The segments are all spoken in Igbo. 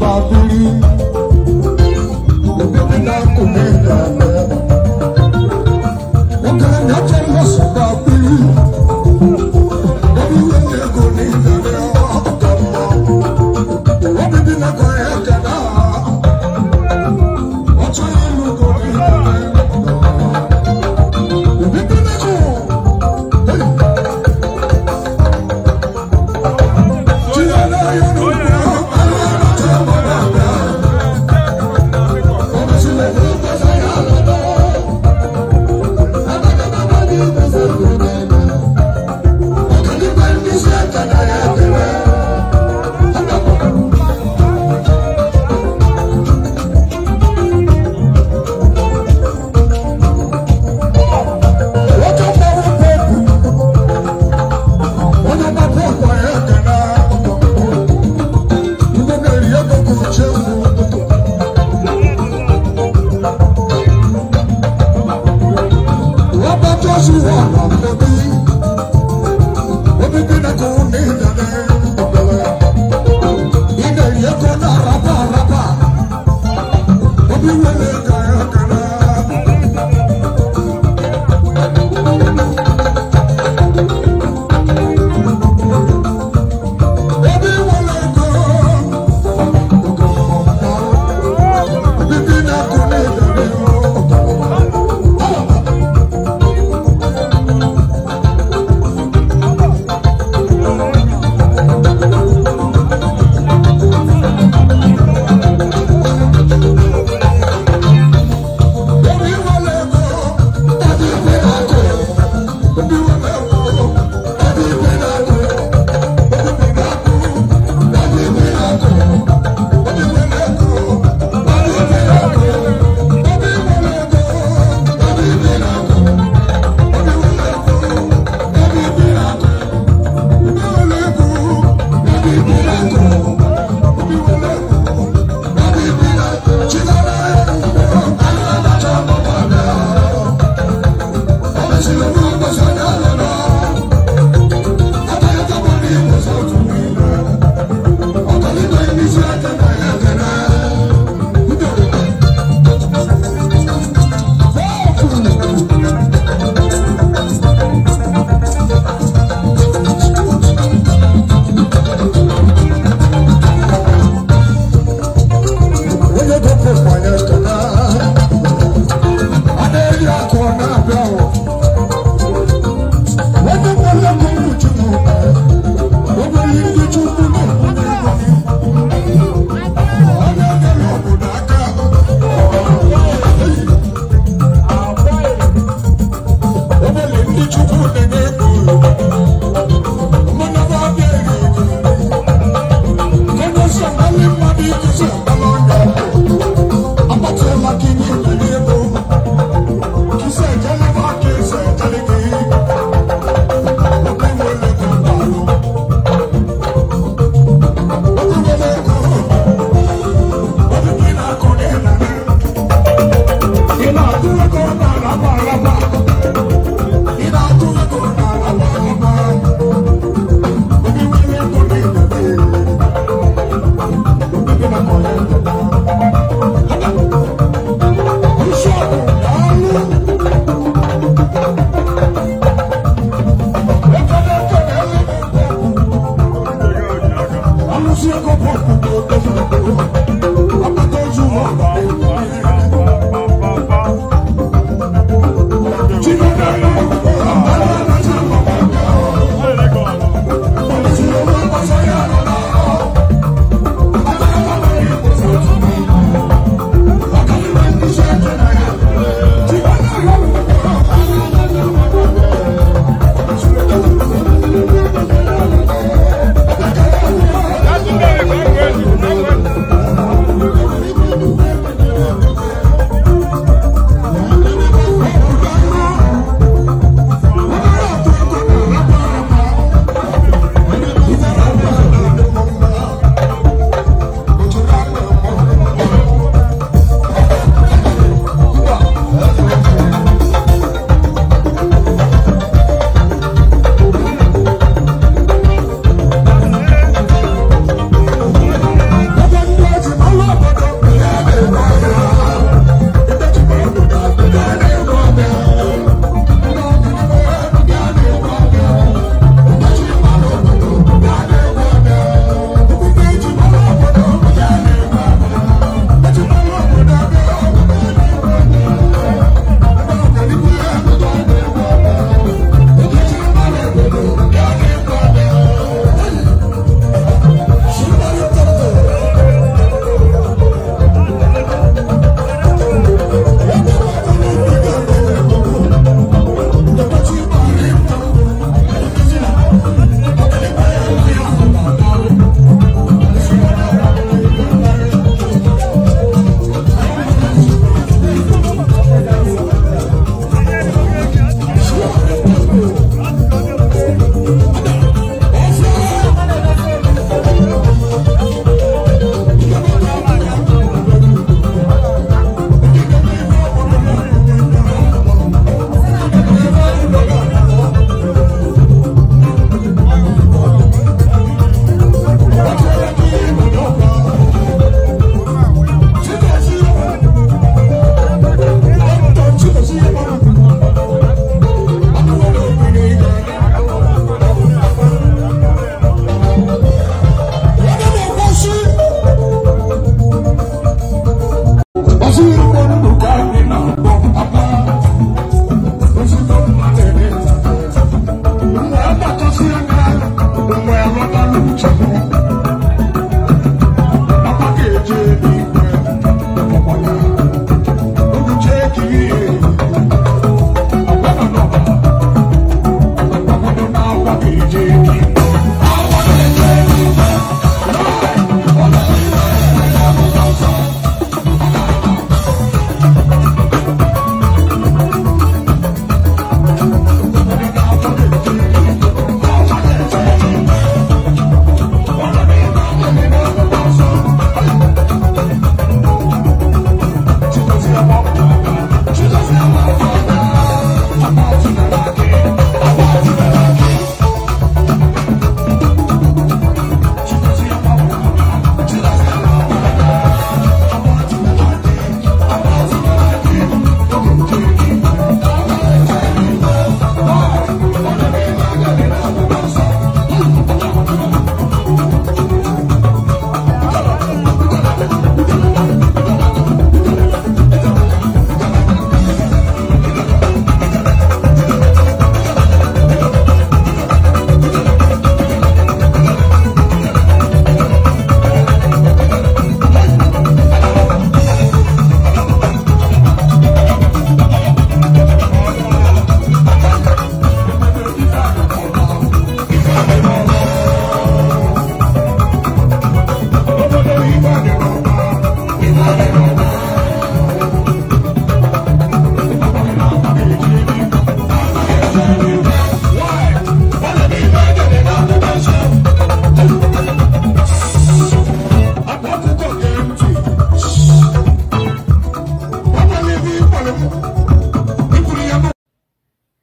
love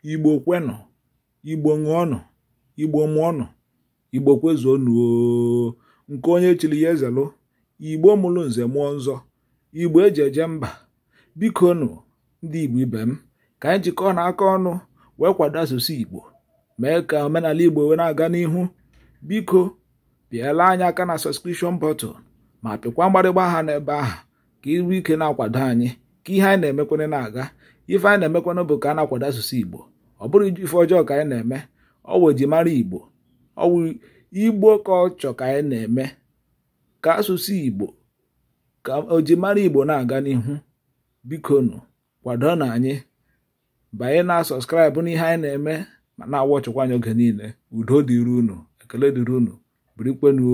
igbo kwenụ igbo ṅụọnụ igbo mụọnụ igbo kwezuonụ nke onye chiri ya ezelụ igbo mụrụ nze mụọ nzọ igbo eji eje mba biko nụ ndị igbo ibe m ka anyị jikọọ na aka ọnụ wee kwado asụsụ igbo mee ka omenala igbo wee na-aga n'ihu biko pịala anyị aka na sọskrishọn bọtụl ma pịkwa mgbarịgba aha n'ebe ahụ ka ịrụ ike na-akwado anyị ka ihe anyị na-emekwere na-aga ife anyị na-emekwanụ bụ ka a na-akwado asụsụ igbo ọ bụrụ ife ọjọọ ka anyị na-eme ọ wụ ejimara igbo ọ wụ igbo ka ọ chọ ka anyị na-eme ka asụsụ igbo ka ojimara igbo na-aga n'ihu bikonu kwado na anyị banye na sọskraịbụ n'ihe anyị na-eme ma na-awachịkwa anyị oge niile udo dịrị unu ekele dịrị unu birikwenu